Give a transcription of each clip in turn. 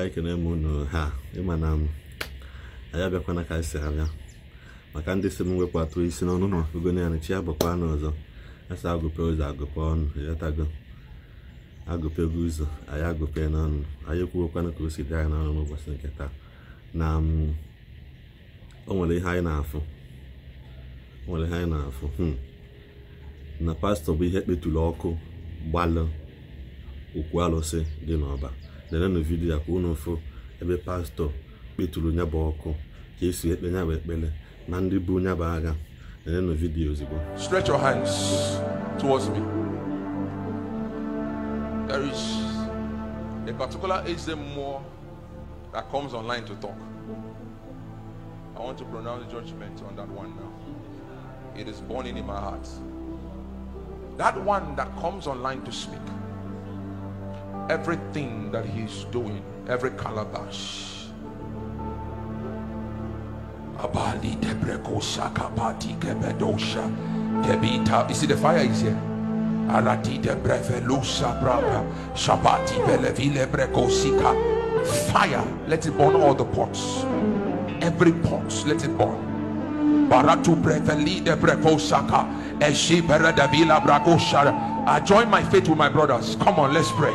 anyị ekene m unu ha ịma na anyị abịakwana ka anyị si abịa maka ndị si m wepụ isi n'ọnụ na ọkụgo na ya chi ya bụkwa anụ ọzọ asa agụpe ụzọ agụpe ọnụ ghọtago agụpego ụzọ anyị agụpe n'ọnụ anyị ka o si dị anyị n'ọnụ n'ụbọchị nke taa na o nwere ihe anyị na-afụ o nwere anyị na hmm. na pastọ bụ ihe ọkụ gbalụ okwu alụsị dị n'ọba lerenụ vidiyo ka unu fụ ebe pastọ kpeturu nya bụ ọkụ ka esi ekpe nya bụ ekpere na ndị bụ nya bụ agha lerenụ vidiyo ozugbo stretch your hands towards me there is a particular HM more that comes online to talk I want to pronounce judgment on that one now it is burning in my heart that one that comes online to speak everything that he's doing, every calabash. Abali debrekosha kebedosha You see the fire is here. Arati brava shabati belevile Fire, let it burn all the pots. Every pot, let it burn. Baratu breveli debrekosaka eshibere devila brakoshara. I join my faith with my brothers. Come on, let's pray.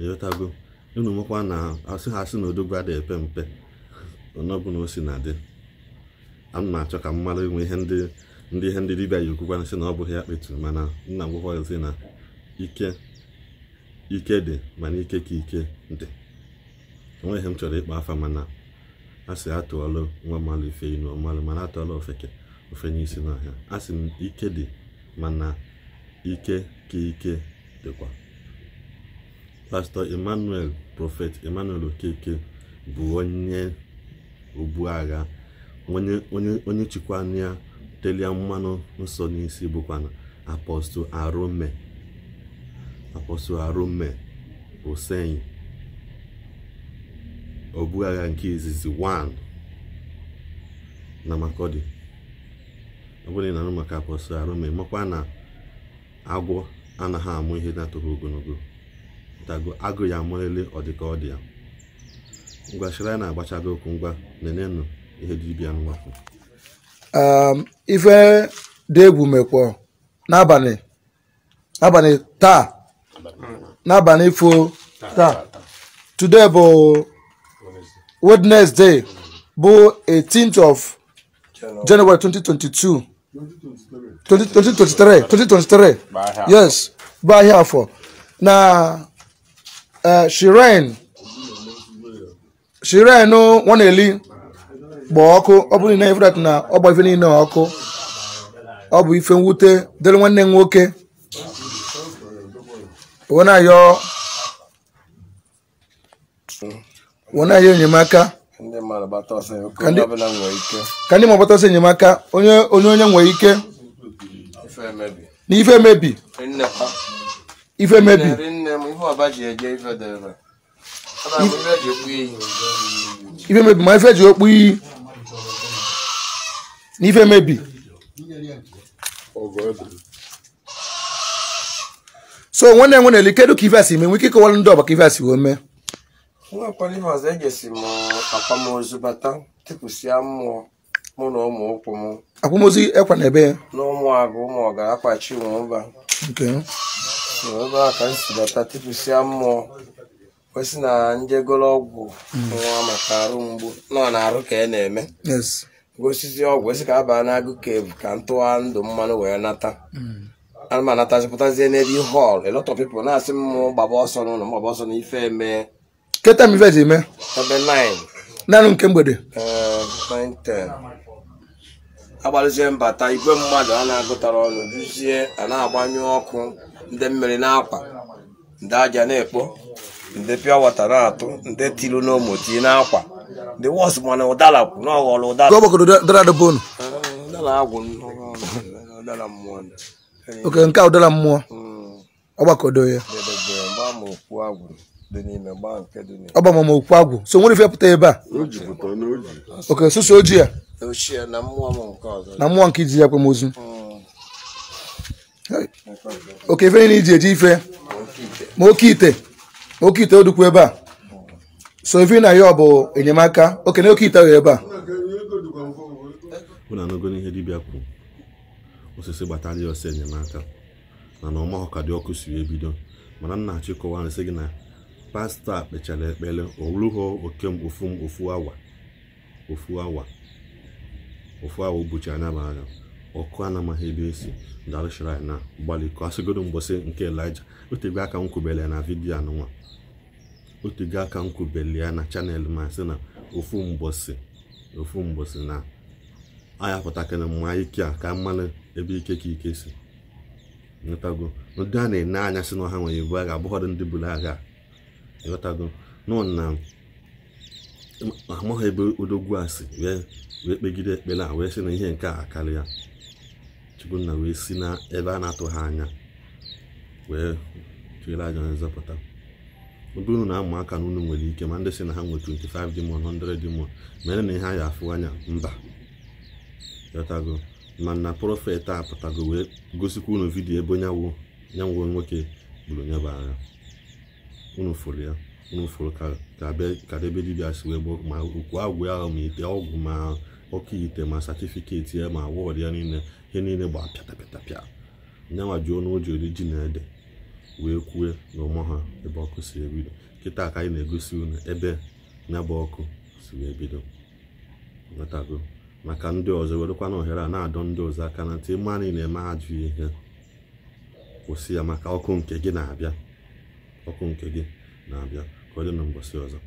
ịghọtago unu nwekwa na asị ha asị na odogwu adịghị epe mpe ọnọbụla o si na dị ana na achọ ka m mara inwe ihe ndị ndị ihe ndị dibịa yi okwukwa sị na ọ bụghị ya kpeturu mana nna si na ike ike dị mana ike ka ike dị onwe ihe m chọrọ ịkpa afa mana a sị atụọla nwa mmalụ ife inu ọmalụ mana atụọla ofeke ofenye isi n'ọhịa a sị m ike dị mana ike ka ike dịkwa pastọ emmanuel profet emmanuel okeke bụ onye obu agha onye chịkwana ya telia mmanụ nsọ n'isi bụkwana apọstụ arome apọstụ arome hussein obu agha nke izizi 1 na makọdị ọbụla ị anụ maka apostol arome makwa na agwọ anaghị amụ ihe na-atụghị ogologo tago agụ ya amalele ọdịka ọ dị ya ngwa shiraya na-agbachago okwu ngwa nenenụ ihe dibịa nwafọ um, ife dị egwu mekpọ n'abalị abalị taa n'abalị ifo taa today bụ wednesday bụ 18th of january 2022 2023 2023 yes bụ ahịa afọ na Eh, shiren shiren nwa na-eli gba ọkụ ọ bụrụ na ifrat na ọgba ife niile ọkụ ọ bụ ife mwute dịrị nwanne m nwoke wenayo enyemaka ka ndị ma gbata ọsọ enyemaka onye onye nwere ike na ife emebi ife emebi m ife ọba ji eje ife dị ebe ife mebi ma ife ji okpu iyi n'ife mebi so nwanne nwe na-eli kedu ka ife si mee nwike ịkọwara ndị ọba ka ife a si wee mee nwakwara ihe ọzọ ejesi m akwamozu bata tipụsịa mmụọ mụ na ụmụ ụkwụ m akwamozu ekwa na ebe ya n'ụmụ agụ ụmụ ọga akwachi ụmụ ụba ebe mm. mm. a ka m si bata tipụsịa mmụọ kwesị na njegoro ọgwụ nwa maka arụ mgbu nọ na-arụ ka ị na-eme gosizi ọgwụ esi ka a baa n'agụ kevu ka ntụwa ndụ mmanụ wee nata ana m anatazipụtazie n'ebe ihe ọl elọtọ pipụl na-asị m gbaba ọsọ n'ụlọ m ọsọ na eme keta m ife eme ebe naanị nke mgbede 910 eh, agbalụzie mbata igwe mmadụ a na-agụtara ọnụ duzie a na-agbanyụ ọkụ ndị mmiri na-akwa ndị aja na-ekpo ndị pịa wata na-atụ ndị tiru n'ụmụti na-akwa ndị wọs mana ụdara kwụ na ọghọrọ ụdara oke nke a ụdara mmụọ hmm. ọgbakọdo ya ọgbamama okwu agwụ so nwere ife pụta ebe a oke susu ojii ya na mmụọ nke iji ya ozu. Hmm. oke ife niile iji eji ife ma oke ite ma oke ite odukwu ebe a so ife na ya ọ bụ enyemaka oke na oke ite ahụ ebe a ụ na ihe n'ihe dibịa kwu osisi gbata ya ọsọ enyemaka mana ọma ọma dị ọkụ si ebido mana nna achịkọwa na gị na pasta kpechara ekpere owurughị oke ofu awa ofu awa ofu awa ụbọchị anya bụ anya ọkụ a na-amaghị ebe esi dara shrine na gbaliko asịgodo mgbọsị nke elija otego aka m kwubele na vidio anụnwa otego aka m kwubele ya na chanel ma sị na ofu mgbọsị ofu mgbọsị na anya pụtakịrị mma ike a ka mmanụ ebe ike ka ike si ịghọtago ndị a na-ene anya si na ha nwere ibu agha abụghọdụ ndị buru agha ịghọtago nọ na amaghị ebe odogwu a si wee kpegide ekpere a wee sị na ihe nke a ya. Chukwunna wee si ebe a na-atụghị anya wee tụere aja onye nzọpụta ebe unu na-amụ aka na unu nwere ike ma ndị si na ha nwere 25 demon 100 demon mere na ihe a ga afụ anya mba yọtago mana prọfet a pụtago wee gosikwa unu vidiyo ebe onye nyanwo nwoke gburu onye bụ agha unu fụrụ ya unu fụrụ ka debe dibia si wee gboo ma okwu agwụ ya ahụ ma ite ọgwụ ma oke ite ma satifiketi ya ma awọdụ ya niile ihe niile gba pịatapịatapịa nyanwa ji ọnụ oji ori ji na ede wee kwue na ụmụ ha ebe ọkụ si ebido kịta ka anyị na-egosi unu ebe nya ọkụ si wee bido nwetago maka ndị ọzọ werekwa na ohere a na-adọ ndị ọzọ aka na ntị ịma anyị na-eme ajụ ihe kwụsị ya maka ọkụ nke gị na-abịa ọkụ nke gị na-abịa ka ọ dị na mbọsị ọzọ